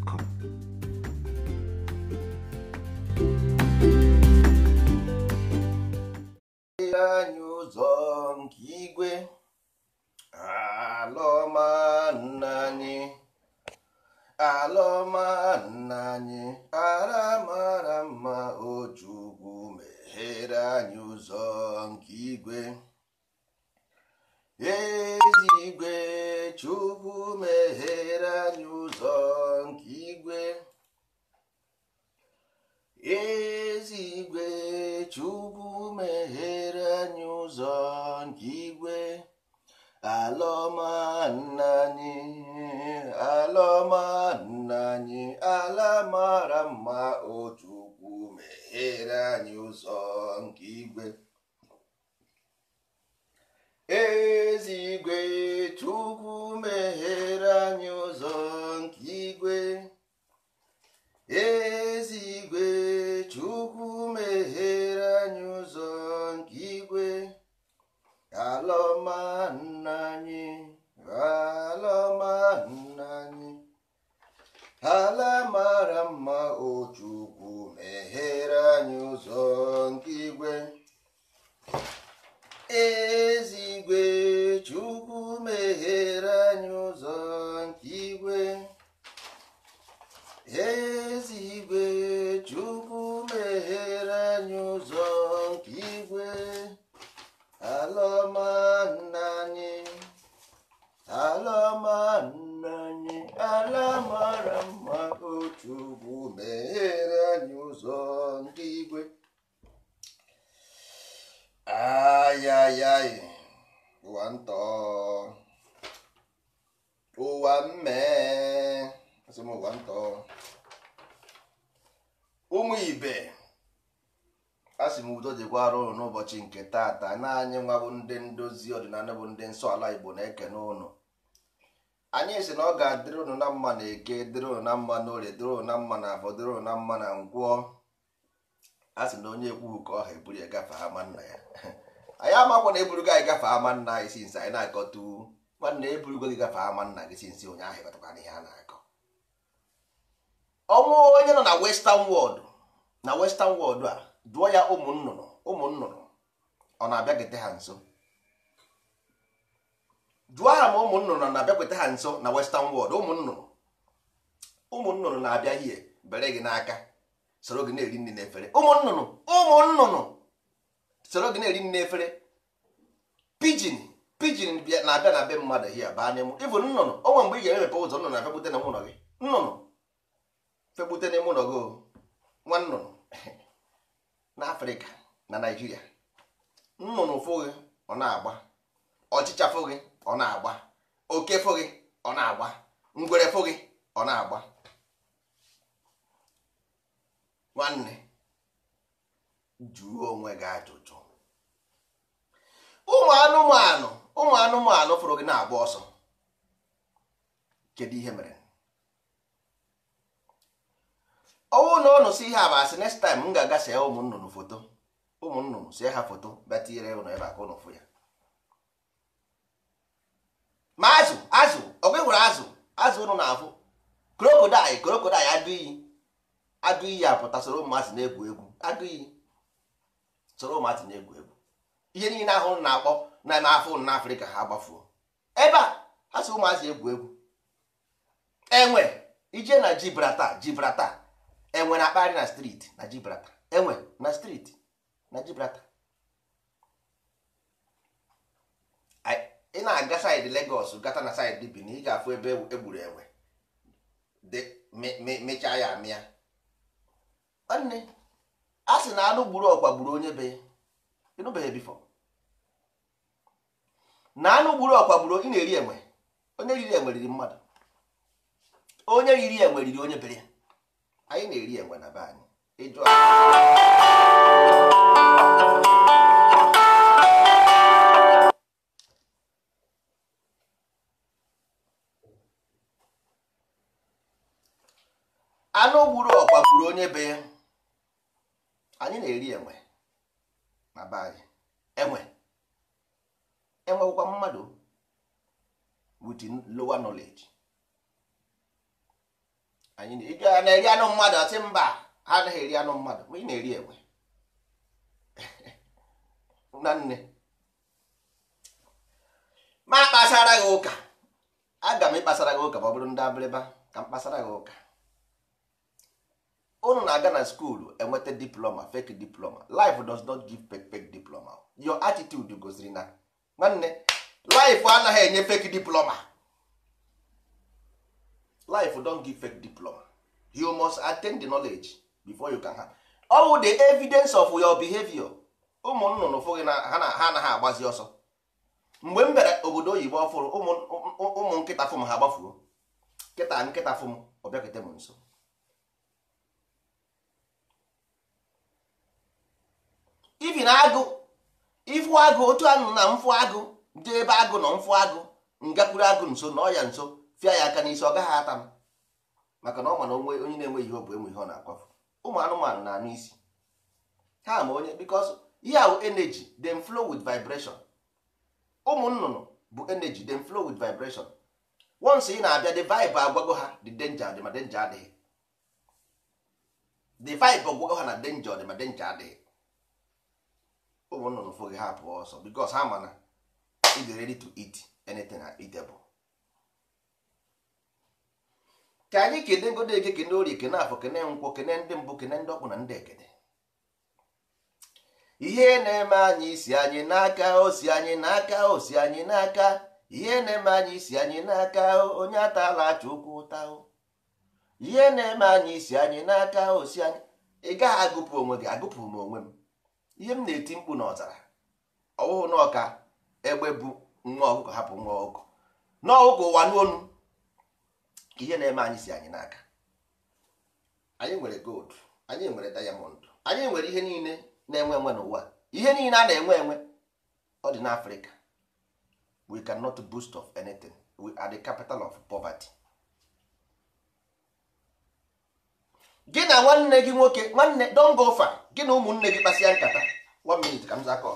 Podcast.com. ma ụbọchị nke taata na anyị nwabụ ndị ndozi ọdịnala bụ ndị nsọ ala igbo na-ekene ụnụ anyị si na ọ ga-adịrị ụnụ na mma na eke dịrị ụnụ na mma na orie dịrị ụnụ na mma na afọ dịrị ụnụ na mma na ngwọ a sị na onye ekwughị ka ọha eburu ya gafe ama nna ya anyị amakwa na eburugo anyị gafe ama nna anyị sinsi anyị na-akọtu nwanne eburugo gị gafe ama nna gị sinsi onye ahụ ịkọtakwana ihe a na-akọ ọnwụ onye nọ na western world na western world a dụọ ya ụmụ nnụnụ ụmụ nnụnụ ọ na-abịakwete ha nso jụọ ha ma ụmụ nnụnụ na-abịakwete ha nso na western world ụmụnnụnụ ụmụnnụnụ na-abịa hie bere gị n'aka soro gị na-eri nri n'efere ụmụ ụmụnnụnụ ụmụ soro gị na-eri nri n'efere pijin pijin na-abịa na be mmadụ hie baa n'ime ịbụ nnụnụ onwe mgbe ị ga-emepe ụzọ nnụnụ na-abịakwute na ụlọ gị nnụnụ fegbute n'ime gị oh. nwa nnụnụ na afrịka na naijiria nnụnụ fụghị ọ na-agba ọchịcha ọ na-agba oke fụ ọ na-agba ngwere fụ ọ na-agba nwanne juo onwe gị ajụjụ ụmụ anụmanụ ụmụ anụmanụ fụrụ gị na-agba ọsọ kedu ihe mere ọnwụ na ọnụ si ihe a next time m ga-aga see ụmụ nnụnụ foto ụmụ nnụnụ sie ha foto bịa tinyere ụnụ ebe a ka ụnụ ya ma azụ azụ ọgwa hụrụ azụ azụ ụnụ na-afụ krokodil krokodil adịghị adịghị apụta soro ụmụazị na-egwu egwu adịghị soro ụmụazị na-egwu egwu ihe niile ahụ na-akpọ na n'afọ na afrịka ha gbafuo ebe a ha so ụmụazị egwu egwu enwe ije na Gibraltar Gibraltar enwe na akparị na striti na Gibraltar enwe na striti na Gibraltar ị na-aga saịdị Lagos gata na saịdị bini ị ga-afụ ebe egburu enwe mechaa ya amịa nwanne a sị na anụ gburu ọkwa gburu onye be ịnụbeghị bifọ na anụ gburu ọkwa gburu ị na-eri enwe onye riri enwe riri mmadụ onye riri enwe riri onye bere anyị na-eri enwe na be anyị ịjụ anụ gburu ọkwa gburu onye be ya anyị na-eri enwe na be anyị enwe enwekwa mmadụ with lower knowledge anyị na-eri anụ mmadụ asị mba ha anaghị eri anụ mmadụ ma ị na-eri enwe na nne ma kpasara gị ụka aga m ịkpasara gị ụka ma ọ bụrụ ndị abịrịba ka m kpasara gị ụka unu na-aga na skuulu enweta diploma fake diploma life does not give fake fake diploma your attitude goziri na nwanne life anaghị enye fake diploma life don't give fake diploma you must attain the knowledge before you can ha ọwụ the evidence of your behavior ụmụ nnụnụ fụghị na ha anaghị agbazi ọsọ mgbe m bịara obodo oyibo ọfụrụ ụmụ nkịta fụm ha gbafuo nkịta nkịta fụm ọbịakete m nso ibi na agụ ịfụ agụ otu anụ na mfụ agụ dị ebe agụ nọ mfụ agụ ngakwuru agụ nso na ọya nso fịa ya aka n'isi ọ gaghị ata m maka na ọ ma na onwe onye na-enweghị ihe ọ bụ enwe ihe ọ na-akwafu ụmụ anụmanụ na-anụ isi ha ma onye because ihe ahụ energy dem flow with vibration ụmụ nnụnụ bụ energy dem flow with vibration once ị na-abịa the vibe agwago ha the danger dị ma danger adịghị the vibe agwago ha na danger dị ma danger adịghị ụmụ nnụnụ foghị ha pụọ ọsọ because ha mana ịdị ready to eat anything eatable ka anyị kene ngodo eke kene orie kene afọ kene nkwọ kene ndị mbụ kene ndị ọkpụ na ndị ekene ihe na-eme anyị isi anyị n'aka osi anyị n'aka osi anyị n'aka ihe na-eme anyị isi anyị n'aka onye atala acha ụkwụ ụta ihe na-eme anyị isi anyị n'aka osi anyị ị gaghị agụpụ onwe gị agụpụ m onwe m ihe m na-eti mkpu na ọzara ọwụhụ n'ọka egbe bụ nwa ọkụkọ hapụ nwa ọkụkọ n'ọkụkọ ụwa n'onu ihe na-eme anyị si anyị n'aka anyị nwere gold anyị nwere diamond anyị nwere ihe niile na-enwe enwe n'ụwa ihe niile a na-enwe enwe ọ dị n'afrịka we cannot boost of anything we are the capital of poverty gị na nwanne gị nwoke nwanne don go gị na ụmụnne gị kpasịa nkata one minute ka m zakọ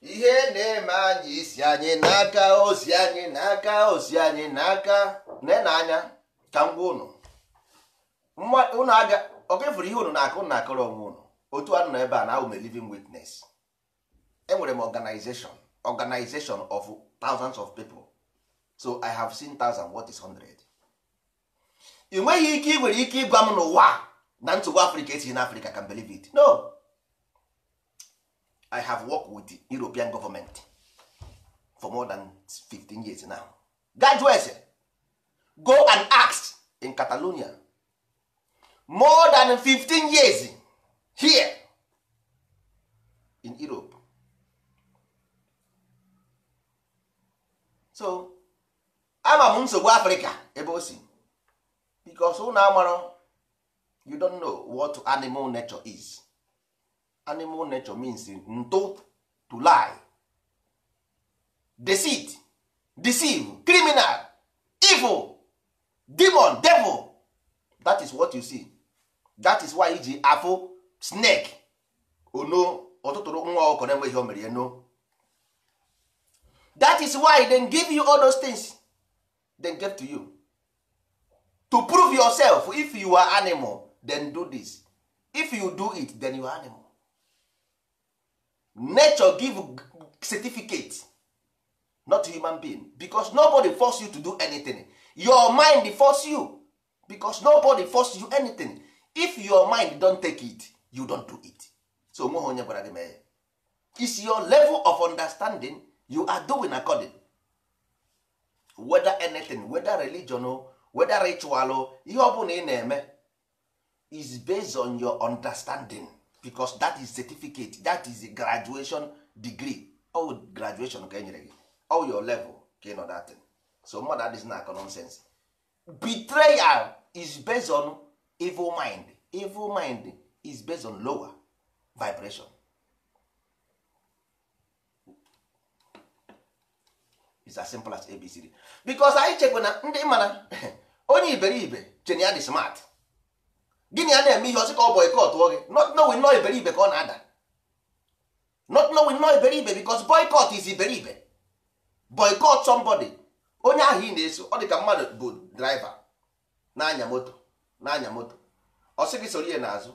ihe na-eme anyị isi anyị n'aka ozi anyị n'aka ozi anyị n'aka na anya ka m gwa unu okefuru ihe unu na-akụ na akọrọ onwe unu otu anụ nọ ebe a na awụ m living witness enwere m organization organization of thousands of people so i have seen thousand what is hundred ị nweghị ike ị nwere ike ịgwa m n'ụwa na nsogbu afrịka esighị n'afrịka can believe it no i have worked with the european government for more than 15 years now graduates go and ask in catalonia more than 15 years here in europe so ama m nsogbu Africa ebe o si because ụnụ amarọ you don't know what animal nature is animal nature means ntụ to lie deceit deceive criminal evil demon devil that is what you see that is why iji afụ snake ono ọtụtụrụ nwa ọkụkọ na-enweghị o mere ya no that is why they give you all those things they give to you to prove yourself if you are animal then do this if you do it then you are animal nature give certificate not human being because nobody force you to do anything your mind force you because nobody force you anything if your mind don take it you don do it so onweghị onye gwara gị mee is your level of understanding you are doing according whether anything whether religion whether ritual ihe ọ bụla ị na-eme is based on your understanding because that is certificate that is a graduation degree all graduation ka enyere gị all your level ka ịnọ dat thing so mmadụ dis na akọ nonsense betrayal is based on evil mind evil mind is based on lower vibration is as simple as abcd because anyị chekwa na ndị mana onye iberibe chen dị smart gịnị ya na-eme ihe ọsị ka ọ gị not knowing no iberibe ka ọ na-ada not knowing no iberibe because boycott is iberibe boycott somebody onye ahụ ị na-eso ọ dị ka mmadụ bụ draiva na-anya moto na-anya moto ọ sị gị soro ihe n'azụ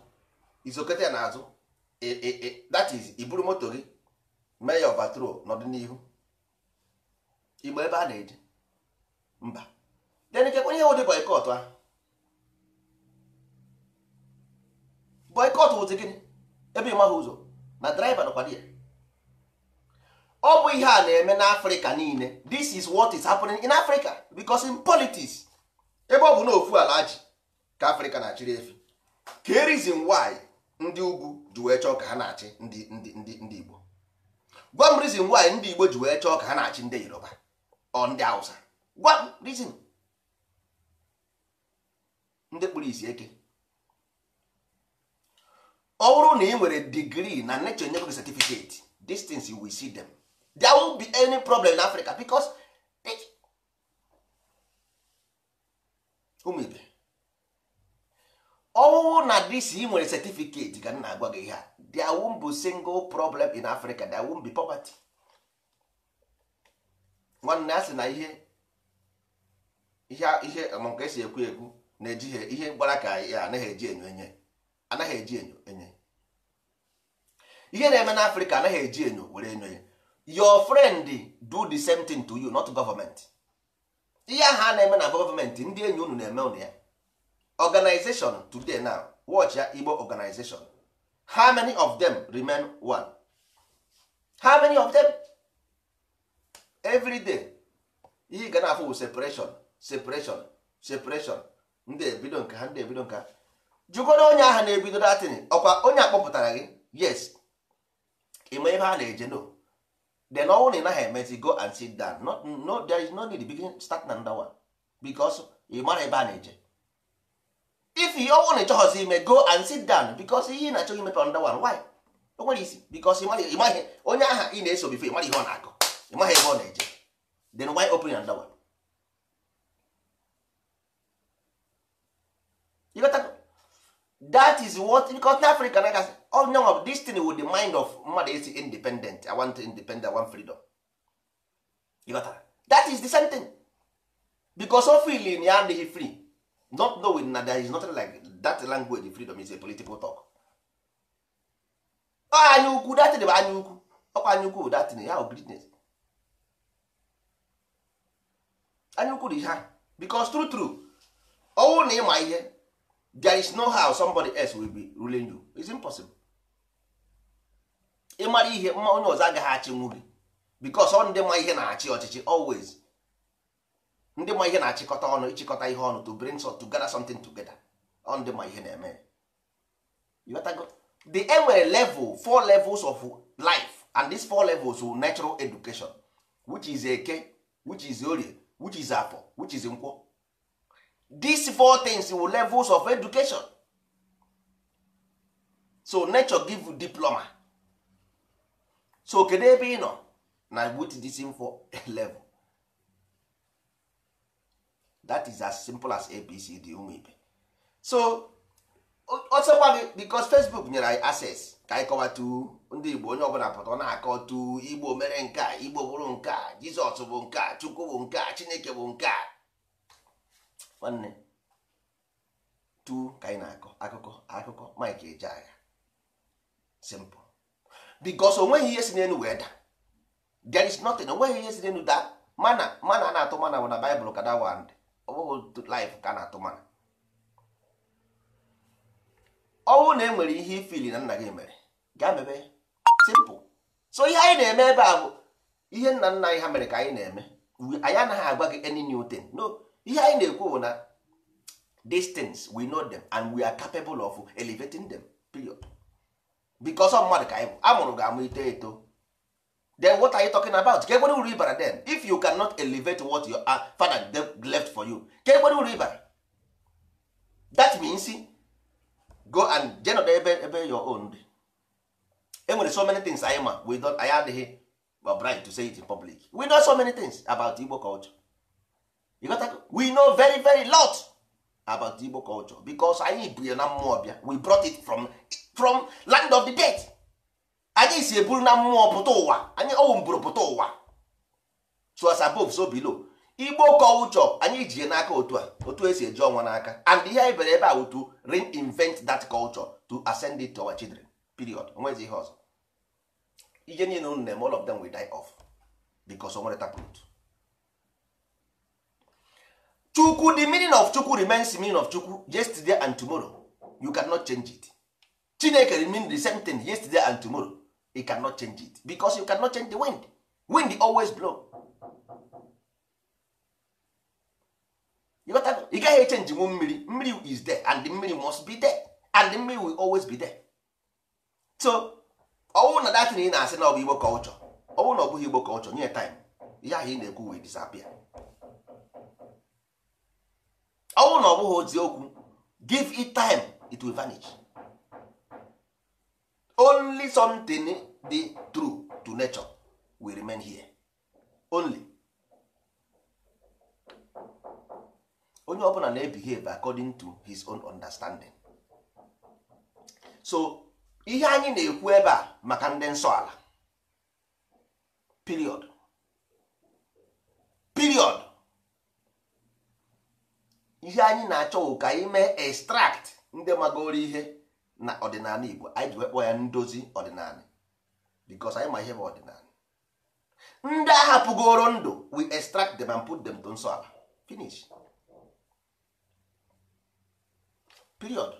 izokete ya n'azụ e, e, e, that is iburu moto gị mee ya overthrow n'ọdịnihu igbo ebe a na-eje mba then ikekwe onye wụ dị ahụ boycott wụzi gịnị ebe ịmaghị ụzọ na driver nọkwa ya ọ bụ ihe a na-eme n'afrịka niile this is what is happening in africa because in politics ebe ọ bụ n'ofu ofu ala ji ka afrịka na-achịrị efi ka e reason why ndị ugwu ji wee chọọ ka ha na-achị ndị ndị ndị igbo gwa m reason why ndị igbo ji wee chọọ ka ha na-achị ndị yoruba ọ ndị hausa gwa m reason ndị kpụrụ isi eke ọ bụrụ na ị nwere digrii na nature nye gị certificate distance you will see them there won't be any problem in Africa because ụmụ eh, ibe ọwụwụ na dis ị nwere certificate ka m na-agwa gị ihe a there won't be single problem in Africa there won't be poverty nwanne a sị na ihe ihe ihe nke esi ekwu ekwu na-ejighị ihe gbara ka ya anaghị eji enyo enye anaghị eji enyo enye ihe na-eme na afrịka anaghị eji enyo were enyo ya your friend do the same thing to you not government ihe ahụ a na-eme na gọọmenti ndị enyi unu na-eme unu ya organization today now watch ya igbo organization how many of them remain one how many of them everyday day ihe ga na-afụ separation separation separation ndị ebido nka ha ndị ebido nka jụgodo onye ahụ na-ebido datin ọkwa onye akpọpụtara gị yes ime ihe a na-eje no then ọnwụ na ị emezi go and sit down No no, there is no need begin start na ndawa because ị mara ebe a na-eje if ọnwụ na ịchọghọzi ime go and sit down because ihe ị na-achọghị imepe ndawa why o nwere isi because ịmaghị onye aha ị na-eso bifo ịmara ihe ọ na ime ịmaghị ebe ọ na-eje then why open na ndawa that is what in africa na gasị onye of this thing with the mind of mmadụ isi independent i want independent i want freedom you got that? is the same thing because of feeling ya adịghị free not knowing na there is nothing like that language freedom is a political talk anya ukwu datin bụ anya ukwu ọkwa anya ukwu datin ya bụ anya ukwu dị ha because true true ọnwụ na ịma ihe there is no how somebody else will be ruling you it's impossible ịmara ihe mma onye ọzọ agaghị achị gị because ọ ndị ma ihe na-achị ọchịchị always ndị ma ihe na-achịkọta ọnụ ịchịkọta ihe ọnụ to bring so to gather something together ọ ndị ma ihe na-eme the enwere level four levels of life and these four levels of natural education which is eke which is orie which is afọ which is nkwọ these four things were levels of education so nature give you diploma so kedu ebe ị nọ na with this info level that is as simple as abcd ụmụ ibe so ọsọkwa gị because facebook nyere anyị access ka anyị tu ndị igbo onye ọbụla pụta ọ na tu igbo mere nke a igbo bụrụ nke a jizọs bụ nke a chukwu bụ nke a chineke bụ nke a nwanne tu ka anyị na-akọ akụkọ akụkọ mike eje agha simple because onweghị ihe si n'elu wee da there is nothing onweghị ihe si n'elu da mana mana a na-atụ mana bụ na baịbụl ka da wand ọbụghị life ka a na-atụ mana ọnwụ na enwere ihe ifili na nna gị mere ga mebe simple so ihe anyị na-eme ebe a bụ ihe nna nna anyị ha mere ka anyị na-eme anyị anaghị agwa gị any new thing no ihe anyị na-ekwu bụ na these things we know them and we are capable of elevating them period because of mmadụ ka anyị bụ amụrụ ga-amụ ito eto then what are you talking about ka ekwere uru ịbara then if you cannot elevate what your uh, father left for you ka ekwere uru ịbara that means go and jenod ebe ebe your own dị enwere so many things anyị ma we don't anyị adịghị bright to say it in public we know so many things about Igbo culture we know very very lot about igbo culture because anyị bu ya na mmụọ bịa we brought it from, from land of the dead anyị si eburu na mmụọ pụta ụwa anyị ọwụ mburu pụta ụwa so as above so below igbo culture anyị ji ya n'aka otu a otu esi eji ọnwa n'aka and ihe anyị bere ebe a wutu reinvent that culture to ascend it to our children period onwezi ihe ọzọ ihe niile unu na-eme all of them will die off because o nwere taproot chukwu the meaning of chukwu remains the meaning of chukwu yesterday and tomorrow you cannot change it chineke remain the same thing yesterday and tomorrow you cannot change it because you cannot change the wind wind always blow ị gaghị echenji nwu mmiri mmiri is there and the mmiri must be there and the mmiri will always be there so ọwụ na datin ị na-asị na ọ bụ igbo kọlchọ ọwụ na ọ bụghị igbo kọlchọ nye time ya ahụ ị na-ekwu wee disappear ọnwụ na ọ bụghị ozi okwu give it time it will vanish only something di true to nature will remain here only onye ọbụla na-ebehave according to his own understanding so ihe anyị na-ekwu ebe a maka ndị nsọ ala period ihe anyị na-achọ ka anyị mee extract ndị magoro ihe na ọdịnala Igbo anyị ji ekpo ya ndozi ọdịnala because anyị ma ihe bụ ọdịnala ndị ahapụgoro ndụ we extract them and put them to nsọ ala finish period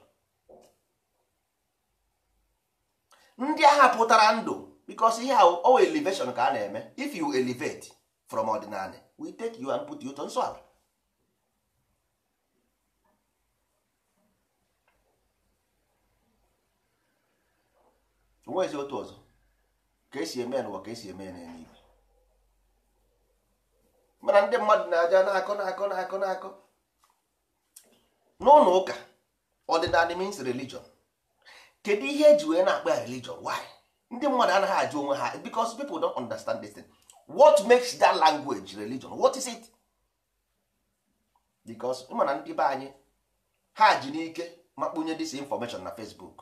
ndị ahapụtara ndụ because ihe ahụ owa elevation ka a na-eme if you elevate from ọdịnala we take you and put you to nsọ ala onwezi otu ọzọ ka esi eme n'ụwa ka esi eme n'eluigwe mana ndị mmadụ na-aja na-akọ na-akọ na-akọ na-akọ n'ụlọ ụka ọdịnala means religion kedu ihe eji wee na-akpa ya religion why ndị mmadụ anaghị ajụ onwe ha because people don't understand this thing what makes that language religion what is it because mana ndị be anyị ha ji n'ike ma kpunye this information na Facebook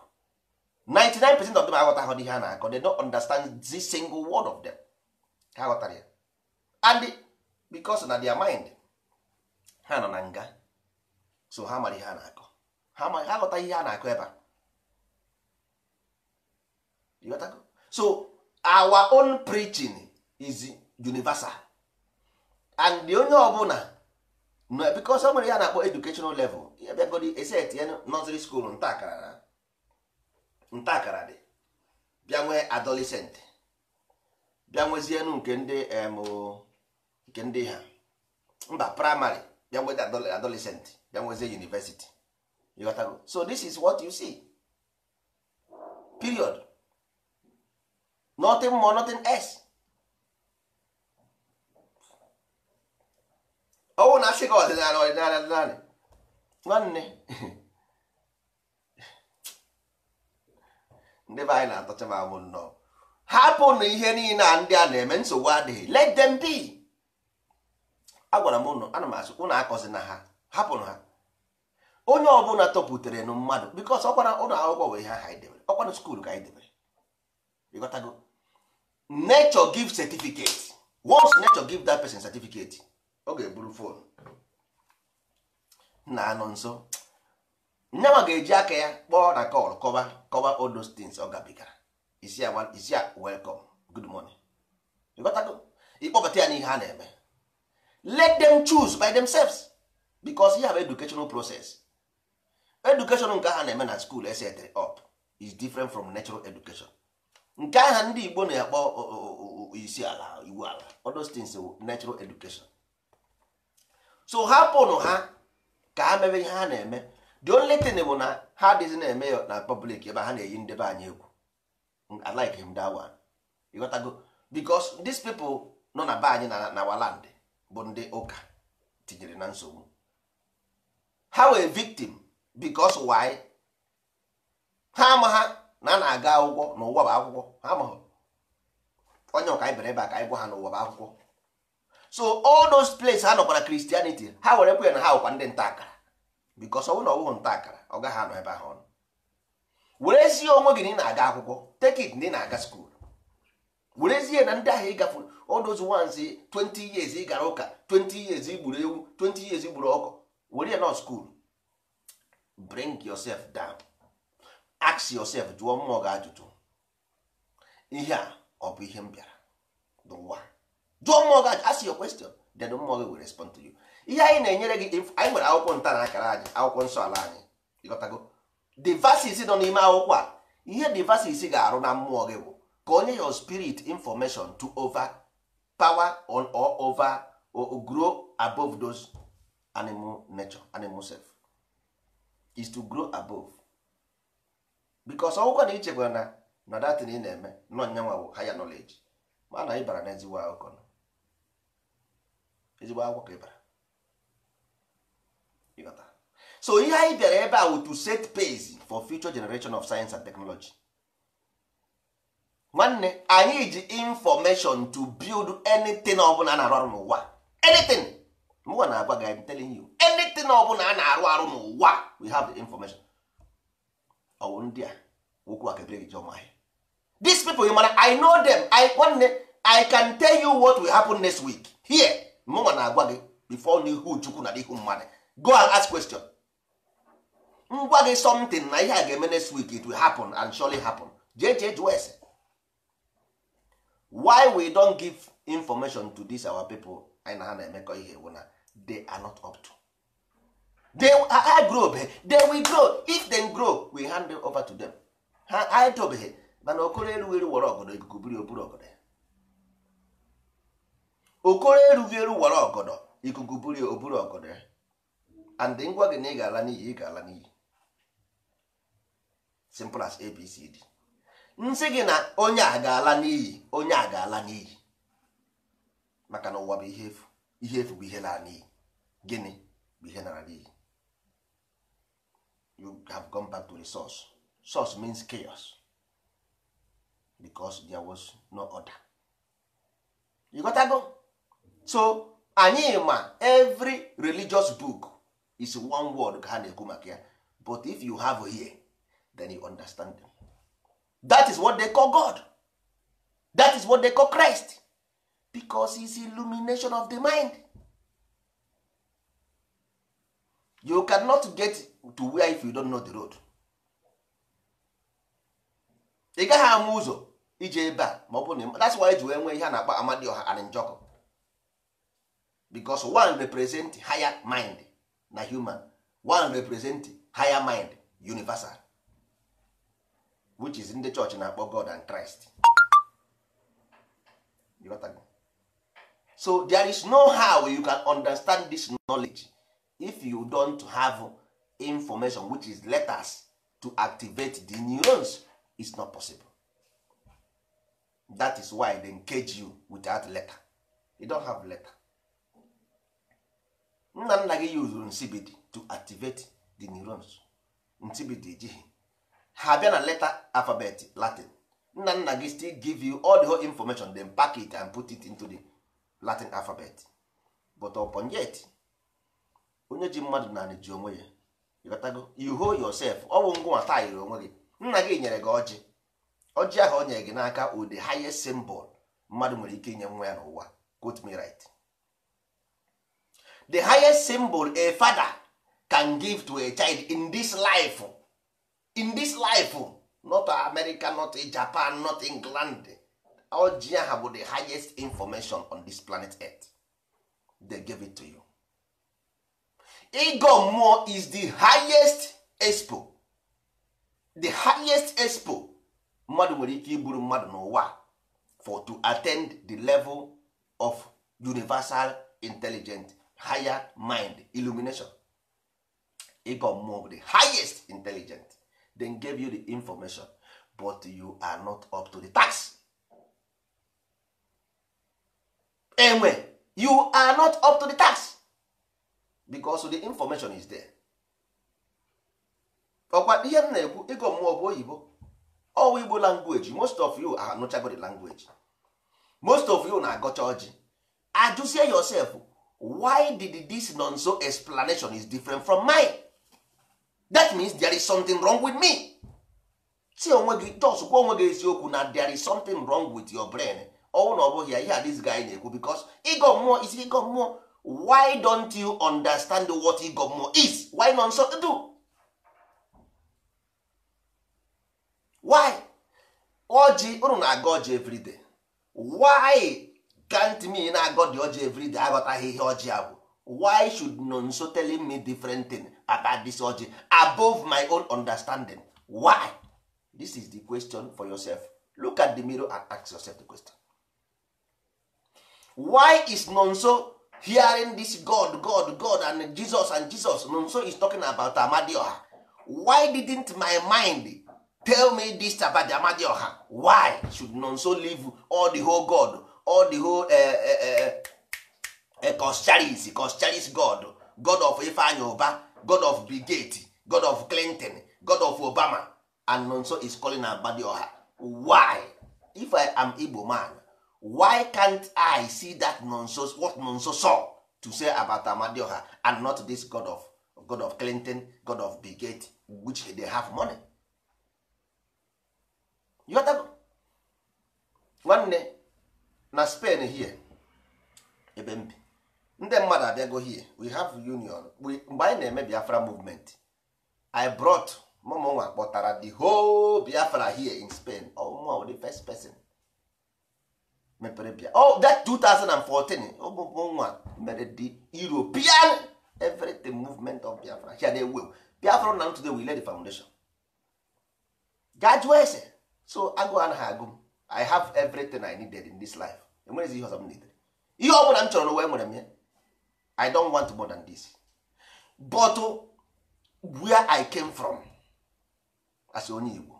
99 percent of them aghọtaghọ ihe a na-akọ they don't understand the single word of them ha ya and because na their mind ha nọ na nga so ha mara ihe a na-akọ ha mara ha ihe a na-akọ ebe a so our own preaching is universal and the onye ọbụla because o nwere ya na-akpọ educational level ya bịagodi eset ya nursery school nta akara na ntakara dị bịa nwee adolescent bịa nwezienụ nke ndị nke ndị ha mba praịmarị bịa nwee adolescent bịa nwezie university ịghọtago so this is what you see period nothing more nothing else ọnwụ na asị gị ọdịnala ọdịnala ọdịnala nwanne ndị be anyị na-atọcha m anwụ nnọọ hapụnụ ihe niile a ndị a na-eme nsogbu adịghị let them be agwara m ụnụ ana m asị ụnụ akọzi na ha hapụnụ ha onye ọbụla tọpụtere nụ mmadụ bikos ọkwara ụlọ akwụkwọ wee ha anyị e debere ọkwara skuul ka anyị debere ịghọtago nature giv certificate once nature giv that pesin certificate ọ ga-eburu fon na anọ nso nyanwa ga-eji aka ya kpọọ na kọl kọba kọba all those things ọ gabigara isi ya isi ya ịkpọbata ya n'ihe a na-eme let them choose by themselves because you have educational process education nke ha na-eme na school eset up is different from natural education nke aha ndị Igbo na-akpọ isi ala iwu ala odostins natural education so hapụnụ ha ka ha mebe ihe ha na-eme the only thing bụ na ha adịghị na-eme ya na public ebe ha na-eyi ndebe anyị egwu I like him that one ịghọtago because these people nọ na be anyị na waland bụ ndị ụka tinyere na nsogbu ha wee victim because why ha ama na a na-aga akwụkwọ na ụwa bụ akwụkwọ ha amaghị onye ọka anyị bere ebe a ka anyị gwa ha na ụwa bụ akwụkwọ so all those places ha nọkwara Christianity ha were kwe na ha wụkwa ndị nta akara bikos ọnwụ na ọwụghụ nta akara ọ gaghị anọ ebe ahụ ọnụ werezie onwe gị na ị na-aga akwụkwọ take it na ị na-aga skuul werezie na ndị ahụ ịgafe odozu wanzi 20 years ị gara ụka 20 years igburu ewu 20 years igburu ọkụ were ya nọ skuul bring yourself down ask yourself jụọ mmụọ gị ajụjụ ihe a ọ bụ ihe m bịara dụwa jụọ mmụọ gị ask your question then mmụọ gị will respond to you ihe anyị na-enyere gị anyị nwere akwụkwọ nta akara anyị akwụkwọ nsọ ala anyị ịghọtago devasis nọ n'ime akwụkwọ a ihe devasis ga-arụ na mmụọ gị bụ ka onye your spirit information to over power on or over or grow above those animal nature animal self is to grow above because ọgwụkwọ na ichekwa na na datin ị na-eme nọ nyanwa bụ higher knowledge mana ị bara n'ezigbo akwụkwọ ezigbo akwụkwọ ka ị bara so ihe anyị bịara ebe a to set pace for future generation of science and technology nwanne anyị ji information to build anything ọbụla a na-arụ arụ n'ụwa anything mụwa na-agwa gị I'm telling you anything ọbụla a na-arụ arụ n'ụwa we have the information ọwụ ndị a okwu a kebere gị jọmahịa these people you mara I know them I nwanne I can tell you what will happen next week here mụnwa na-agwa gị before n'ihu Chukwu na n'ihu mmadụ go and ask question ngwa gị something na ihe a ga-eme next week it will happen and surely happen jee jee jụọ ese why we don't give information to these our people anyị na ha na-emekọ ihe wụ na they are not up to they are grow they will grow if they grow we hand them over to them ha anyị tobeghị mana okoro elu eru were ọgọdọ ikuku biri oburu ọgọdọ okoro erughị eru were ọgọdọ ikuku biri oburu ọgọdọ and ngwa gị na ị ga-ala n'iyi ị ga-ala n'iyi simple as abcd nsị gị na onye a ga-ala n'iyi onye a ga-ala n'iyi maka na ụwa bụ ihe efu ihe efu bụ ihe lara n'iyi gịnị bụ ihe nara n'iyi you have gone back to the source source means chaos because there was no order you got go so anyị ma every religious book is one word ka ha na-ekwu maka ya but if you have here then you understand them. that is what they call God that is what they call Christ because is illumination of the mind you cannot get to where if you don't know the road ị gaghị ama ụzọ ije ebe a ma ọ bụ na that's why ji wee nwee ihe a na-akpọ Amadioha and Njọkụ because one represent higher mind na human one represent higher mind universal which is ndị church na-akpọ god and christ so there is no how you can understand this knowledge if you don't have information which is letters to activate the neurons is not possible that is why they cage you without letter you don't have letter nna nna gị yuzuru nsibidi to activate the neurons nsibidi ejighị ha bịa na leta alfabet latin nna nna gị still give you all the whole information then pack it and put it into the latin alphabet but upon yet onye ji mmadụ naanị ji onwe ya ịghọtago you hold yourself ọ bụ ngwa yiri onwe gị nna gị nyere gị ọjị ọjị ahụ o nyere gị n'aka o the highest symbol mmadụ nwere ike inye nwa ya n'ụwa quote me right the highest symbol a father can give to a child in this life in this life not america not japan not england all ha bụ the highest information on this planet earth they give it to you ịgọ is the highest expo the highest expo mmadụ nwere ike iburu mmadụ n'ụwa for to attend the level of universal intelligence higher mind illumination ịgọ mmụọ the highest intelligent then gave you the information but you are not up to the task. enwe you are not up to the task because the information is there. ọkwa ihe m na-ekwu ịgọ mmụọ bụ oyibo ọwa igbo language most of you are anụchago the language most of you na-agọcha oji ajụzie yourself why did this nonso explanation is different from mine that means there is something wrong with me si onwe gị dos gwa onwe gị eziokwu na there is something wrong with your brain ọnwụ na ọ bụghị ya ihe this guy na-ekwu because Ego mmụọ is ịgọ mmụọ why don't you understand what Ego mmụọ is why nonso do why ọjị unu na-aga ọjị everyday why can't me na god ọjị everyday aghọtaghị ihe ọjị a bụ why should nonso telling me different thing about this ọjị above my own understanding why this is the question for yourself look at the mirror and ask yourself the question why is nonso hearing this god god god and jesus and jesus nonso is talking about amadioha why didn't my mind tell me this about amadioha why should nonso leave all the whole god all the whole koscharis eh, eh, eh, koscharis god god of ifeanyi ụba god of brigade god of clinton god of obama and nonso is calling abadioha why if i am igbo man why can't i see that nonso what nonso saw to say about amadioha and not this god of god of clinton god of brigade which they have money you nwanne na Spain here ebe mbi bi ndị mmadụ abịago here we have union mgbe anyị na-eme Biafra movement I brought nwa kpọtara the whole Biafra here in Spain ọmụma wụ the first person mepere bia oh that 2014 nwa mere the European everything movement of Biafra here dey well Biafra na today we lay the foundation gajụọ ese so agụ anaghị agụ I have everything I needed in this life enwerezi ihe ọzọ m netere ihe ọ bụla m chọrọ n'ụwa enwere m ya i don want more than this but where i came from as onye Igbo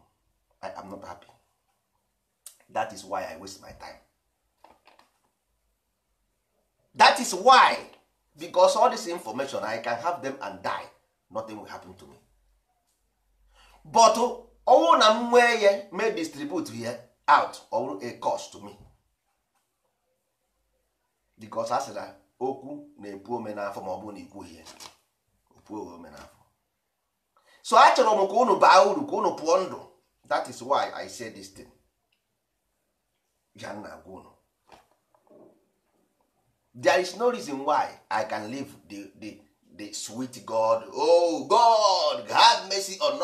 i am not happy that is why i waste my time that is why because all this information i can have them and die nothing will happen to me but ọnwụ na m nwee ya may distribute ya out or a cost to me because a sị na okwu na-epu ome n'afọ ma ọ bụrụ na ikwughị ya opuo ome n'afọ so achọrọ m ka unu baa uru ka unu pụọ ndụ that is why i say this thing ya nna unu there is no reason why i can leave the, the, the sweet god oh god have mercy on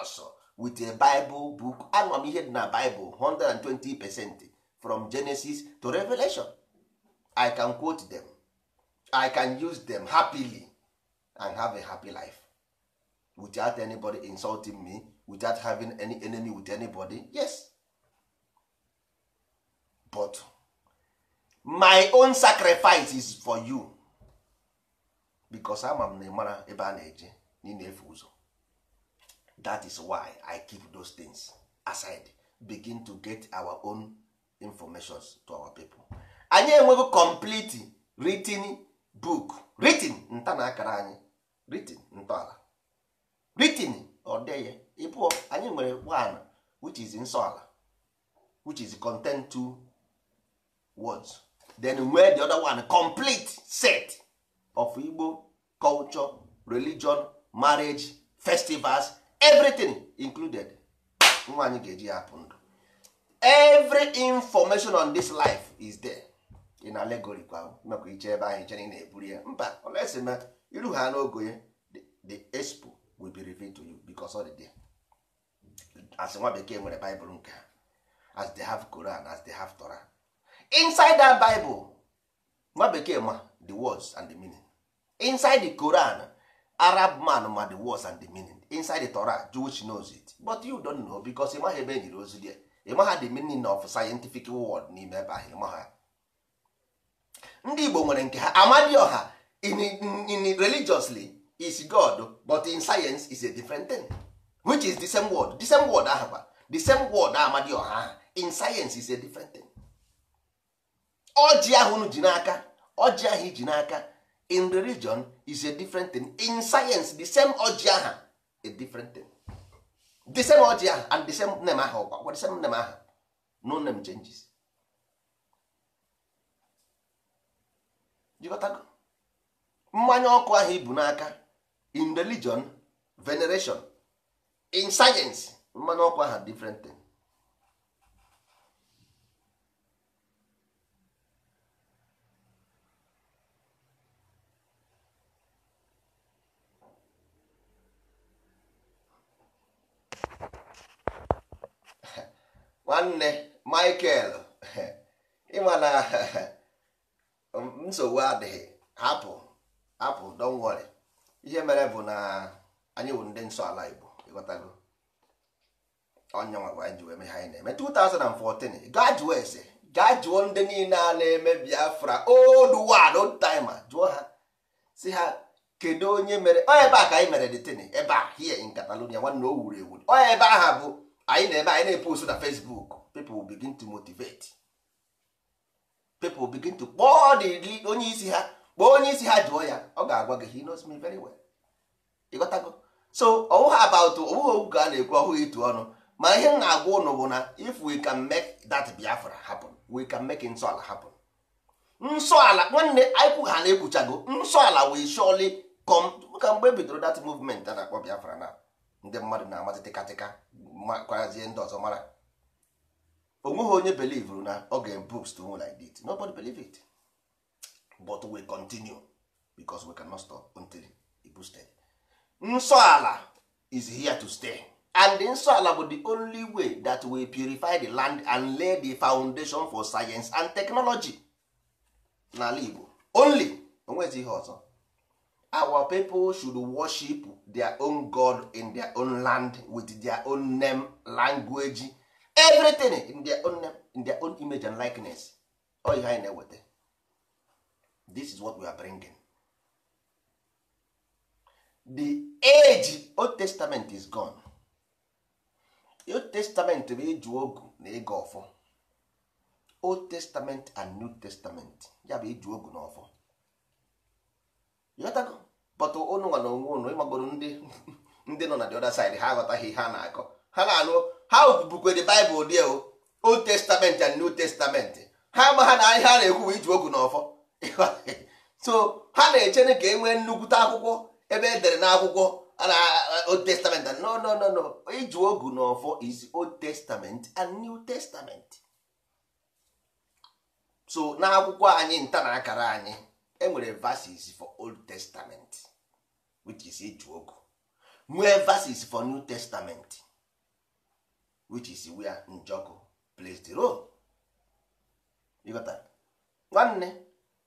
us with a bible book anwa m ihe dị na bible 120 percent from genesis to revelation i can quote them i can use them happily and have a happy life without anybody insulting me without having any enemy with anybody yes but my own sacrifice is for you because ama m na ịmara ebe a na-eje na ị that is why i keep those things aside begin to get our own informations to our people. anyị enweghị complete written book written nta na akara anyị written ntọala written ọdeye ịpụọ anyị nwere one which is nsọala which is content two words then nwee the other one complete set of Igbo culture religion marriage festivals everything included nwa anyị ga-eji ya ndụ every information on this life is there. ị na alegori kwa iche ebe anyị chere na-eburu ya mba olesi ma iru ha n'ogo ya the expo will be revealed to you because all the day as nwa bekee nwere Bible nke as they have Quran as they have Torah inside that Bible nwa bekee ma the words and the meaning inside the Quran Arab man ma the words and the meaning inside the Torah Jewish knows it but you don't know because ị maghị ebe e nyere ozi there ị the meaning of scientific word n'ime ebe ahụ ị ndị Igbo nwere nke ha Amadioha ọha in religiously is God but in science is a different thing which is the same word the same word ahụkwa the same word Amadioha aha in science is a different thing ọjị ahụ ji n'aka ọjị ahụ iji n'aka in religion is a different thing in science the same ọjị aha a different thing the same ọjị aha and the same name ahụ ọkwa the same name no name changes mmanya ọkụ ahụ ibu n'aka in religion veneration in science mmanya ọkụ ahụ different thing. nwanne michael ịma na Um, nsogbu adịghị hapụ hapụ don't ihe mere bụ na anyị bụ ndị nsọ ala igbo ịghọtago onye nwa anyị ji wee ha anyị na-eme 2014 gaa jụọ ese gaa jụọ ndị niile a na-eme biafra old oh, world old timer jụọ ha si ha kedu onye mere onye ebe a ka anyị mere detini ebe a here in Catalonia nwanne o wuru ewu onye ebe aha bụ anyị na-ebe anyị na-epost na Facebook people will begin to motivate people begin to kpọọ the onye isi ha kpọọ onye isi ha jụọ ya ọ ga-agwa gị he knows me very well ịghọtago so ọwụghị about ọwụghị okwu ka a na-ekwu ọhụghị ịtụ ọnụ ma ihe m na-agwa ụnụ bụ na if we can make that Biafra happen we can make nsọala happen nsọala nwanne anyịkwụ ha na-ekwuchago nsọala we surely come ka mgbe e bidoro that movement a na-akpọ Biafra na ndị mmadụ na-amazị tịkatịka kwazie ndị ọzọ mara nweghị onye belivuru na ọ ga books to like that nobody believe it but we continue because we cannot stop until it boosted nsọ ala is here to stay and nsọ ala bụ the only way that we purify the land and lay the foundation for science and technology n'ala Igbo only onwezi ihe ọzọ our people should worship their own god in their own land with their own name language everything in their own name, in their own image and likeness all you na-eweta this is what we are bringing the age old testament is gone old testament bụ ịjụ ogu na ịga ọfọ old testament and new testament ya bụ ịjụ ogu na ọfọ ịghọtago but ụnụ na onwe ụnụ ịmagoro ndị ndị nọ na the other side ha aghọtaghị ihe a na-akọ ha na-anụ ha bukwe the Bible dị o Old Testament and New Testament ha ama ha na ihe a na-ekwu bụ iji na ọfọ so ha na-eche ka e nwee nnukwute akwụkwọ ebe e dere n'akwụkwọ na Old Testament and no no no no iji ogu na ọfọ is Old Testament and New Testament so n'akwụkwọ anyị nta na akara anyị enwere verses for Old Testament which is iji ogu nwee verses for New Testament which is where Njoku plays the nwanne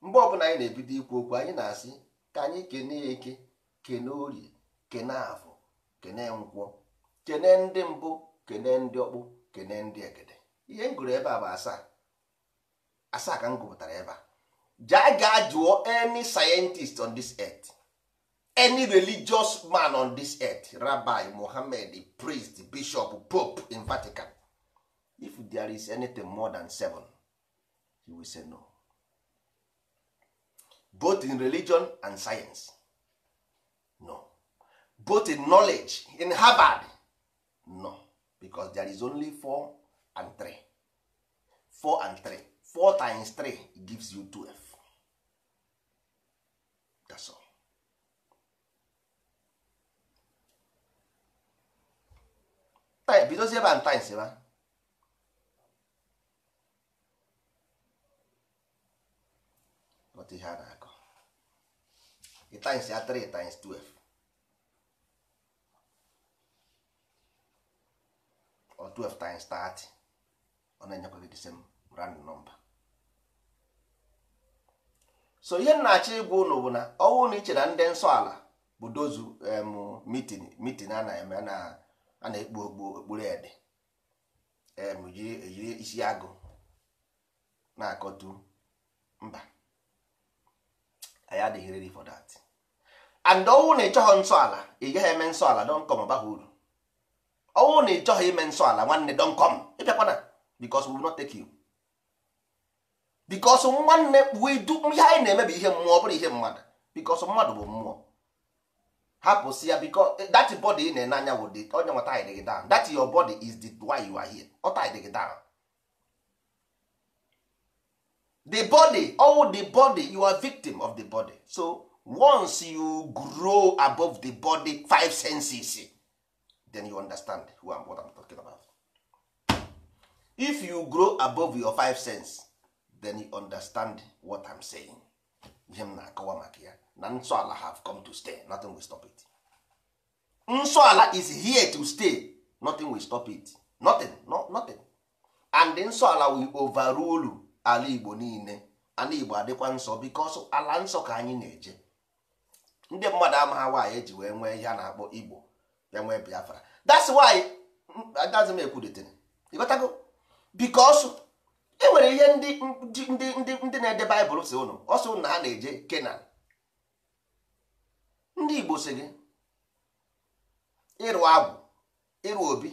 mgbe ọbụla anyị na-ebido ikwu okwu anyị na-asị ka anyị kene eke kene orie kene afọ kene nkwọ kene ndị mbụ kene ndị ọkpụ kene ndị egede ihe m gụrụ ebe a bụ asaa asaa ka m gụpụtara ebe a jaa gaa jụọ any scientist on this earth any religious man on this earth rabbi mohammed priest bishop pope in vatican if there is anything more than seven he will say no both in religion and science no both in knowledge in harvard no because there is only four and three four and three four times three gives you twelve that's all bidozie ebe a na-akọ times 3 12 or 12 times 30 ọ na-enyekwa gị so ihe na-achọ ịgwa ụlọ bụ na ọnwụ na ichere ndị nsọ ala bụ na a na-ekpu okpu okpuru ede ejiri isi agụ na-akọtu mba anyị adịghị ready for that and ọnwụ na ịchọghị nsọ ala ị gaghị eme nsọ ala dọnkọm abaghị uru ọnwụ na ịchọghị ime nsọ ala nwanne dọnkọm ịbịakwana because we will not take you because nwanne wedu ihe anyị na-eme bụ ihe mmụọ ọ bụrụ ihe mmadụ because mmadụ bụ mmụọ hapụsị ya because eh, that body ị na-ene anya wụ the onye nwa tied down that your body is the why you are here ọ tied gị down the body all the body you are victim of the body so once you grow above the body five senses then you understand who am what I'm talking about if you grow above your five sense then you understand what I'm saying ihe m na-akọwa maka ya na nsọ ala have come to stay nothing will stop it nsọ ala is here to stay nothing will stop it nothing no, nothing and nsọ ala will overrule ala igbo niile ala igbo adịkwa nsọ because ala nsọ ka anyị na-eje ndị mmadụ amaghị nwaanyị eji wee nwee ihe a na-akpọ igbo ya nwee biafra that's why adazim ekwudetere ịghọtago because e nwere ihe ndị ndị ndị na-ede baịbụl si ụnụ ọsọ ụnụ ha na-eje kenan ndị Igbo si gị ịrụ agwụ ịrụ obi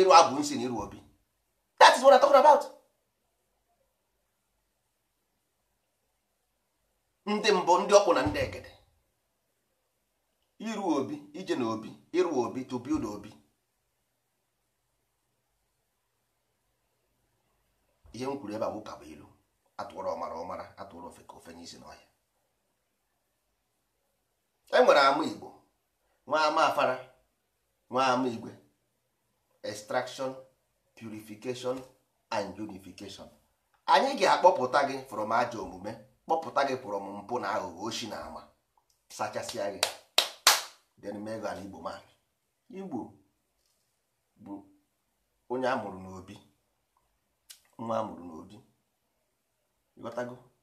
ịrụ agwụ nsi na ịrụ obi that is what I'm talking about ndị mbụ ndị ọkpụ na ndị egede ịrụ obi ije na obi ịrụ obi to build obi ihe m kwuru ebe a bụ ilu atụrụ ọmara ọmara atụrụ ofe ka ofe n'isi n'ọhịa enwere ama igbo nwa ama afara nwa ama igwe extraction purification and unification anyị ga-akpọpụta gị from ajọ omume kpọpụta gị from mpụ na aghụghọ oshi na ama sachasịa gị then igbo man igbo bụ onye amụrụ n'obi nwa amụrụ n'obi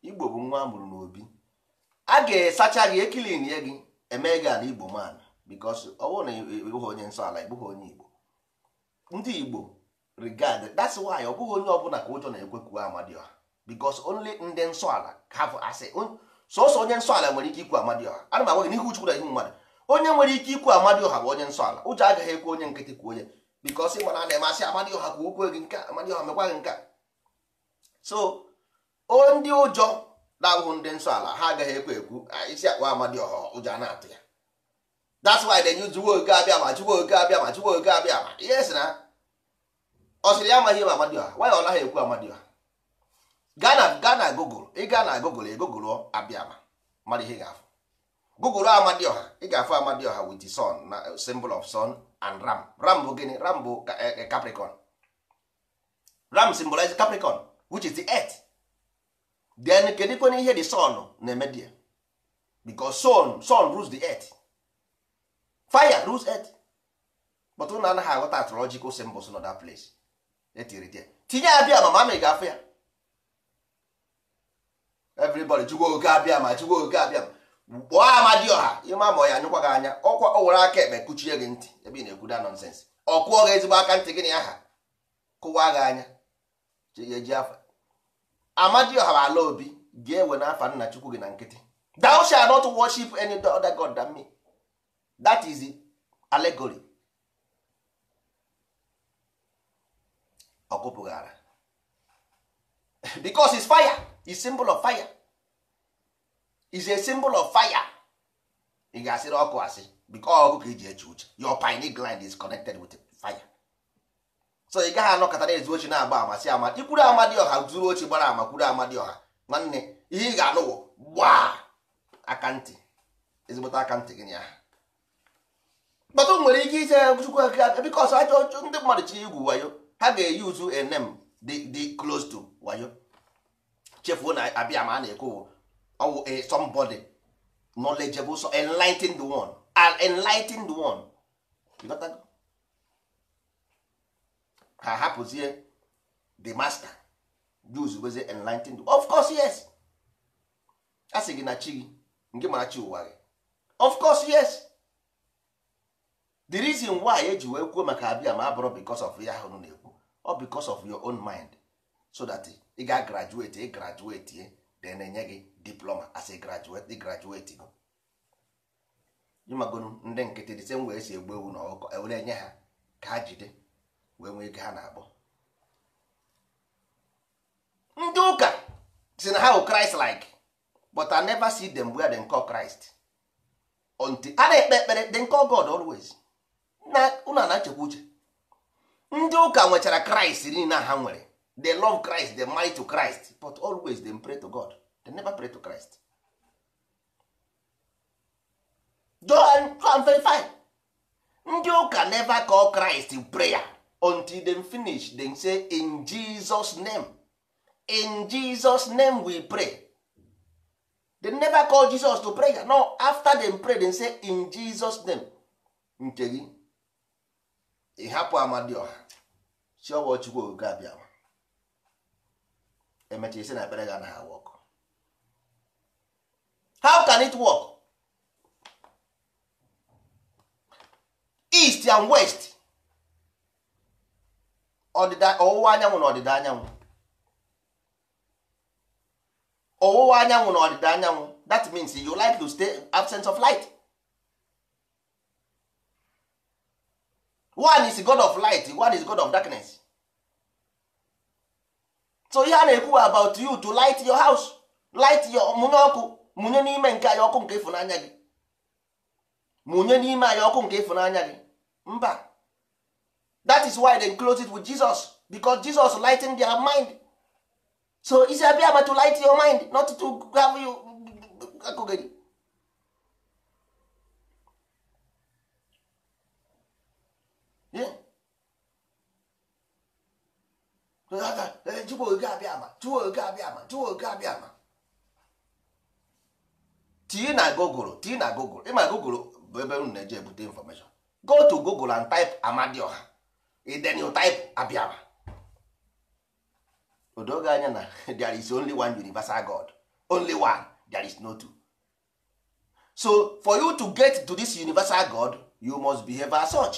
igbo bụ nwa amụrụ n'obi a ga-esacha gị ekilin ya gị Emee gị ala igbo man because ọ bụrụ na ịbụghị onye nsọ ala ịbụghị onye igbo ndị igbo regard that's why ọ bụghị onye ọbụla ka ụjọ na-ekwekwu amadioha because only ndị nsọ ala have asị sọsọ onye nsọ ala nwere ike ikwu amadioha ana m agwa gị n'ihu Chukwu na ihu mmadụ onye nwere ike ikwu amadioha bụ onye nsọ ala ụjọ agaghị ekwe onye nkịtị kwuo onye because ị mana na-eme asị amadioha kwuo okwu gị nke amadioha mekwa gị nke so ndị ụjọ na-abụghị ndị nsọ ala ha agaghị ekwe ekwu ah, isi akpa amadioha ụjọ na-atụ ya that's why they use oge abịa ma jiwe oge abịa ma jiwe oge abịa ma ihe si na ọ sịrị ya amaghị ma amadioha nwaanyị ọ naghị ekwu amadioha gana gana gụgụl ịga na gụgụl abịa ma mmadụ ihe ga-afụ gụgụlụ amadioha ị ga-afụ amadioha with the sun na uh, symbol of sun and ram ram bụ gịnị ram bụ eh, eh, capricorn ram symbolize capricorn which is the earth then kedikwana ihe the sun na-eme dia because sun sun rules the earth fire rules earth but na anaghị aghọta astrological symbols nọ that place etiri dia tinye abịa ma mamị ga-afụ ya everybody jụgwa oge abịa ma jụgwa oge abịa ma kpọọ ọha, ịma ma ọ ya anyụkwa gị anya ọkwa ọ were aka ekpe kuchie gị ntị ebe ị na ekwu da nonsens ọ kụọ gị ezigbo aka ntị gị na aha kụwa gị anya eji afa amadioha bụ ala obi ga-ewe n'afa nna chukwu gị na nkịtị not worship any other god than me that is allegory ọkụpụghara because is fire is symbol of fire is a symbol of fire ị ga-asịrị ọkụ asị because ọkụ ka eji eche uche your pineal gland is connected with fire so ị gaghị anọkọta na-ezu ochi na-agba amasị ama ikwuru ọha zuru oche gbara ama kwuru ọha nwanne ihe ị ga-anụwo gbaa akantị ezigbote akantị gị ya kpọtụ nwere ike ise chukwu aka bikos ajọ ndị mmadụ chi igwu wayo ha ga-eyi uzu enem dị close to wayo chefuo na abịa ma a na-ekwu ọwụ somebody knowledgeable enlighten the one enlighten the one ha hapụzie the master Jews bezie enlightened of course yes a sị gị na chi gị nke mara chi ụwa gị of course yes the reason why eji wee kwuo maka abịa ma abụrụ because of ya ahụ na-ekwu ọ because of your own mind so that ị ga graduate ị graduate ye eh, na enye gị diploma as a graduate graduate go ịmagonu ndị nkịtị dị same wee si egbu ewu na ọkụkọ e enye ha ka ha jide wee nwee ike ha na-akpọ ndị ụka si na ha bụ Christ like but I never see them where they call Christ until a na-ekpe ekpere they call God always na unu na-echekwa uche ndị ụka nwechara Christ niile ha nwere they love Christ they mind to Christ but always they pray to God they never pray to Christ John 5 ndị ụka never call Christ prayer until dem finish dem say in jesus name in jesus name we pray dem never call jesus to pray no after dem pray dem say in jesus name nke gị ịhapụ amadioha chiọwa chukwu ogogo abịawa emecha isi na ekpere ga na ha how can it work east and west ọdịda ọwụwa anyanwụ na ọdịda anyanwụ ọwụwa anyanwụ na ọdịda anyanwụ that means you like to stay absence of light one is god of light one is god of darkness so ihe a na-ekwu about you to light your house light your mụnye ọkụ mụnye n'ime nke anyị ọkụ nke ịfụnanya gị mụnye n'ime anyị ọkụ nke ịfụnanya gị mba that is why they close it with jesus because jesus lighten their mind so is abịa to light your mind not to have you akụgịrị chukwu oge abịa ama chukwu oge abịa ama chukwu oge abịa ama tii na gogoro tii na gogoro ịma gogoro bụ ebe unu na-eji ebute information go to google and type amadioha then you type abịara odoge anya na there is only one universal god only one there is no two so for you to get to this universal god you must behave as such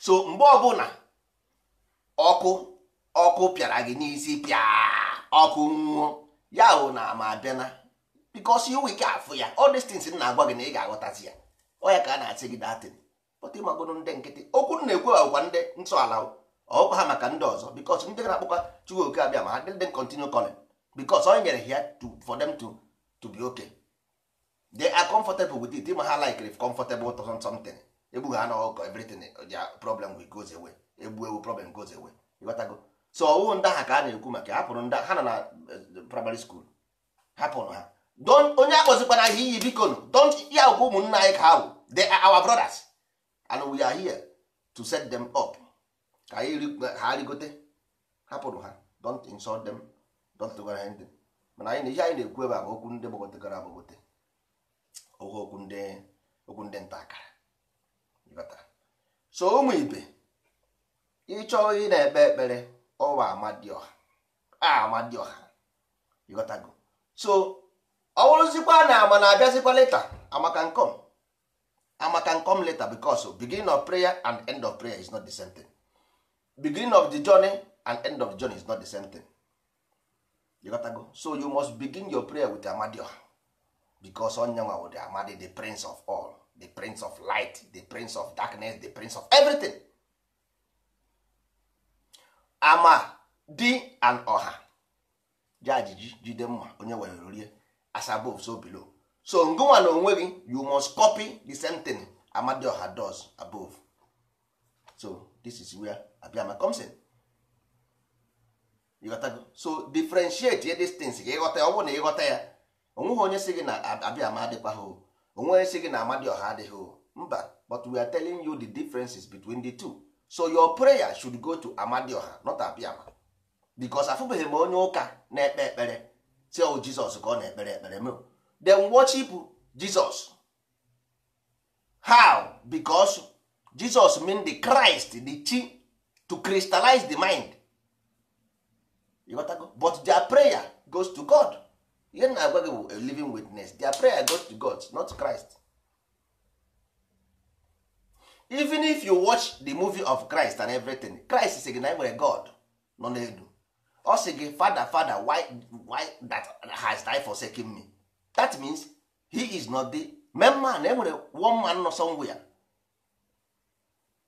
so mgbe ọbụla ọkụ ọkụ pịara gị n'isi pịa ọkụ nwụọ ya wụ na ama abịana because you wike afụ ya all these things na-agwa gị na ị ga-aghọtazi ya o ya ka a na-asị gị datin ịmagodo ndị nkịtị okwu na-ekwe agwa ndị ala ọkwa ha maka ndị ọzọ bikos ndị na akpụkwa chukwu oke abịa ma ha dịdị continue calling bikos onye nyere ya for them to to be okay they are comfortable with it ma ha like if comfortable to something egbugha ha na ọkọ everything problem will goes away egbu ewu problem goes away ịghọtago so ọwụ ndị ahụ ka a na-ekwu maka hapụrụ ndị ha nọ na eh, primary school hapụrụ ha onye akpọzikwana ihe iyi biko don't ya ụmụnna anyị ka ha bụ they our brothers and we are here to set them up ka anyị ha rigote hapụrụ ha don't insult them don't do anything mana anyị na ihe anyị na-ekwu ebe a bụ okwu ndị gbagotegara agbagote oge okwu ndị okwu ndị nta akara so ụmụ ibe ịchọ ị na-ekpe ekpere ọwa amadioha amadioha ịghọtago so ọ bụrụzikwa na ama na-abịazikwa leta amaka nkom ama can come later because beginning of prayer and end of prayer is not the same thing. beginning of the journey and end of the journey is not the same thing. You gotta go. So you must begin your prayer with Amadioha because Onyanwa wụ the Amadi the prince of all the prince of light the prince of darkness the prince of everything. Ama di and Oha ji ajiji jide mma onye were rie as above so below. so ngonwa na onwe gị you must copy the same thing Amadioha does above so this is where Abiama comes in ịghọtago so differentiate ye these things ka ịghọta ya ọ bụrụ na ịghọta ya onweghị onye si gị na Abiama adịkwa ha o onweghị onye si gị na Amadioha adịghị o mba but we are telling you the differences between the two so your prayer should go to Amadioha not Abiama because afụbeghị m onye ụka na-ekpe ekpere si ọ Jizọs ka ọ na-ekpere ekpere m dem worship jesus how because jesus mean the christ the chi to crystallize the mind but their prayer goes to god ihe na agwa gị bụ a living witness their prayer goes to god not christ even if you watch the movie of christ and everything christ sị gị na nwere god nọ n'elu ọ sị gị fada fada why why that has died second me that means he is not the main man enwere one man nọ somewhere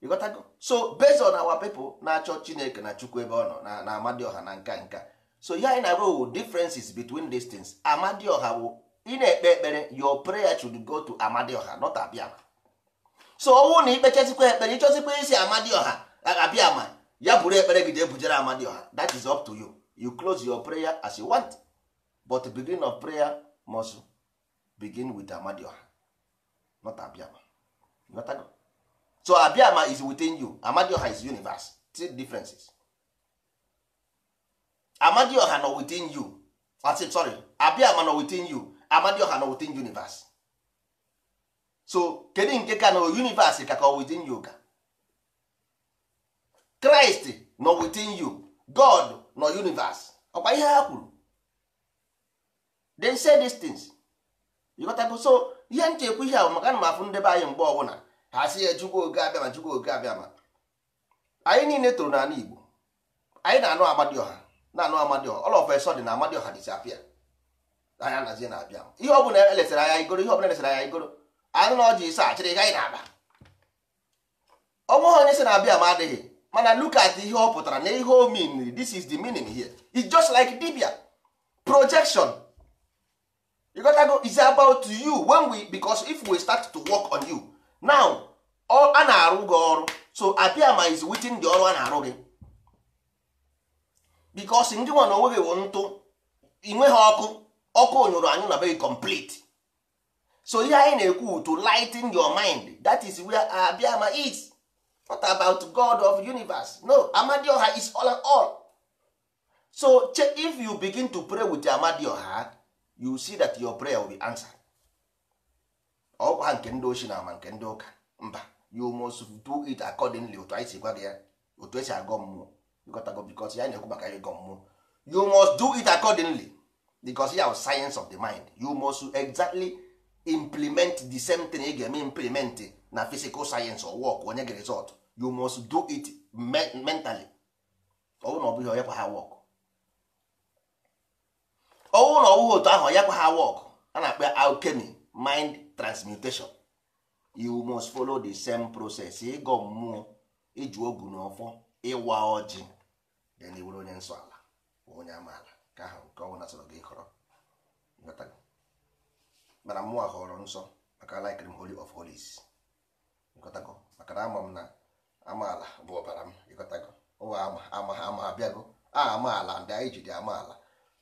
you got so based on our people na-achọ chineke na chukwu ebe ọ nọ na amadioha na nka nka so ya anyị na differences between these things amadioha bụ ị na-ekpe ekpere your prayer should go to amadioha not abiama so ọnwụ na ikpechazikwa ekpere ịchọzikwa isi amadioha abiama ya bụrụ ekpere gị jee amadioha that is up to you you close your prayer as you want but the beginning of prayer muscle begin with amadioha not abiama not so abiama is within you amadioha is universe three differences amadioha no within you That's it, sorry abiama nọ within you amadioha nọ within universe so kedu nke ka nọ universe ka ka within you ka Christ no within you God nọ universe ọkwa ihe ha kwuru they say these things ịghọtago so ihe nchekwa ihe ahụ maka na m afụ ndebe anyị mgbe ọbụla ha si ya jụgo oge abịa ma jụgo oge abịa ma anyị niile toro n'ala Igbo anyị na-anụ Amadioha na-anụ Amadioha all of a sudden na Amadioha disappear anya nazie na-abịa ihe ọbụla elesara anya igoro ihe ọbụla elesara anya igoro anụ na ọjị isa achịrị anyị na-aba ọ nweghị onye si na-abịa ma adịghị mana look at ihe ọ pụtara na ihe o mean this is the meaning here it's just like dibia projection you go is about you when we because if we start to work on you now a na-arụ gị ọrụ so apiama is within the ọrụ a na-arụ gị bikos ndị nwa na onweghị wụ ntụ inweghị ọkụ ọkụ nyụrụ anyị na be complete so ihe anyị na-ekwu to lighten your mind that is where abiama is not about god of universe no amadioha is all and all so if you begin to pray with amadioha you see that your prayer will be answered ọkwa nke ndị ochie na ama nke ndị ụka mba you must do it accordingly otu anyị si gwa gị ya otu esi agọ mmụọ ịgotago bikos ya na-ekwu maka ịgọ mmụọ you must do it accordingly because ya science of the mind you must exactly implement the same thing ị ga-eme implement na physical science or work onye gị result you must do it mentally ọ bụrụ na ọ bụghị onye kwa ha work ọnwụ na otu ahụ ya kwa ha wọk a na-akpọ ya alchemy mind transmutation you must follow the same process ịgọ mmụọ iji ogu na ọfọ ịwa ọjị then iwere onye nsọ ala onye amaala ka ahụ nke ọnwụ nasọrọ gị kọrọ mana mmụọ họrọ nsọ maka likrim holy of holies ịkọtago maka na ama m na amaala bụ ọbara m ịkọtago ụwa ama ama ha ama abịago a amaala ndị anyị ji dị amaala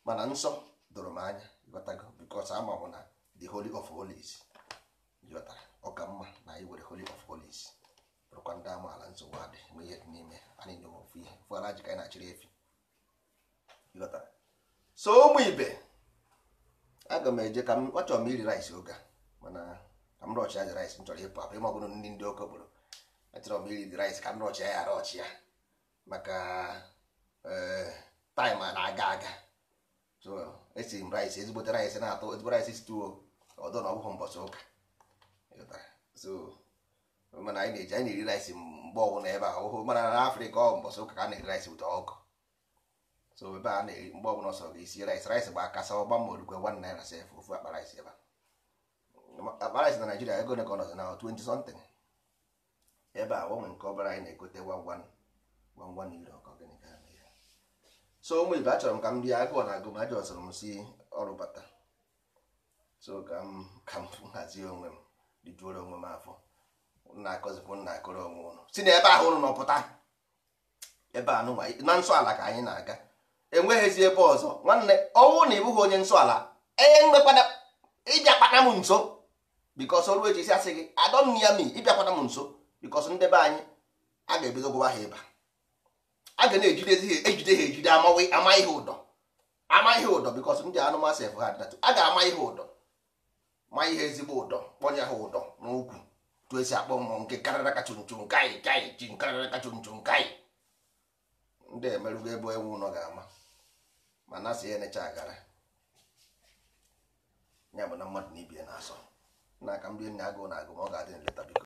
mana nsọ doro m anya ịghọtago because ama m na the holy of holies ịghọtara ọka mma na anyị were holy of holies bụrụkwa ndị amaala nsogbu adị nwe ihe n'ime anyị nyewe ofu ihe ala ji ka anyị na-achịrị efi ịghọtara so ụmụ ibe aga m eje ka m achọrọ m iri rice oge mana ka m rọchị ya rais m chọrọ ịpụ apụ ịmọbụrụ ndị ndị oke okporo chọrọ m iri rais ka m rọchị ya arọchị ya maka eh, taịm na-aga aga so esi m rice ezigbote rice na-atọ ezigbo rice stuo ọdọ na ọbụghị mbọchị ụka mana anyị na-eji anyị na-eri rice mgbe ọbụla ebe a ụhụ mana na afrịka ọ mbọchị ụka ka a na-eri rice ụtọ ọkụ so ebe a na-eri mgbe ọbụla ọsọ ga-esi rice rice gba akasa ọgba ma orukwe one naira sef ofu akpa rice ebe akpa rice na naijiria ego ne ka ọ nọzi na 20 something ebe a gbanwe nke ọbara anyị na-egote 11 euro so ụmụ ibe achọrọ m ka m rie agụọ na agụma ajọ sọrọ m si ọrụ bata so ka m ka m hazie onwe m rijuoro onwe m afọ nna akọzikwu nna akụrụ onwe ụnụ si na ebe ahụ ụnụ nọpụta ebe a na nsọ ala ka anyị na-aga enweghịzi ebe ọzọ nwanne ọnwụ na ịbụghị onye nsọ ala ịbịakwana m nso bikos ọrụ si asị gị adọ m ya mi ịbịakwana m nso bikos ndị be anyị a ga-ebido gwụwa ha ịba a ga na-ejidezi ejide ha ejide ama ihe ụdọ ama ihe ụdọ bikos ndị anụmasị efu ha dịdatụ a ga-ama ihe ụdọ ma ihe ezigbo ụdọ kpọnye ha ụdọ n'ukwu tu esi akpọ mmụọ nke karịra kachunchu nkaị kaị ji nkarịra kachunchu nkaị ndị emerụgo ebe ewu ụnọ ga-ama ma na ya enecha agara ya bụ na mmadụ na ibie na-asọ n'aka ndị enyi agụụ na agụ ma ọ ga-adị nleta biko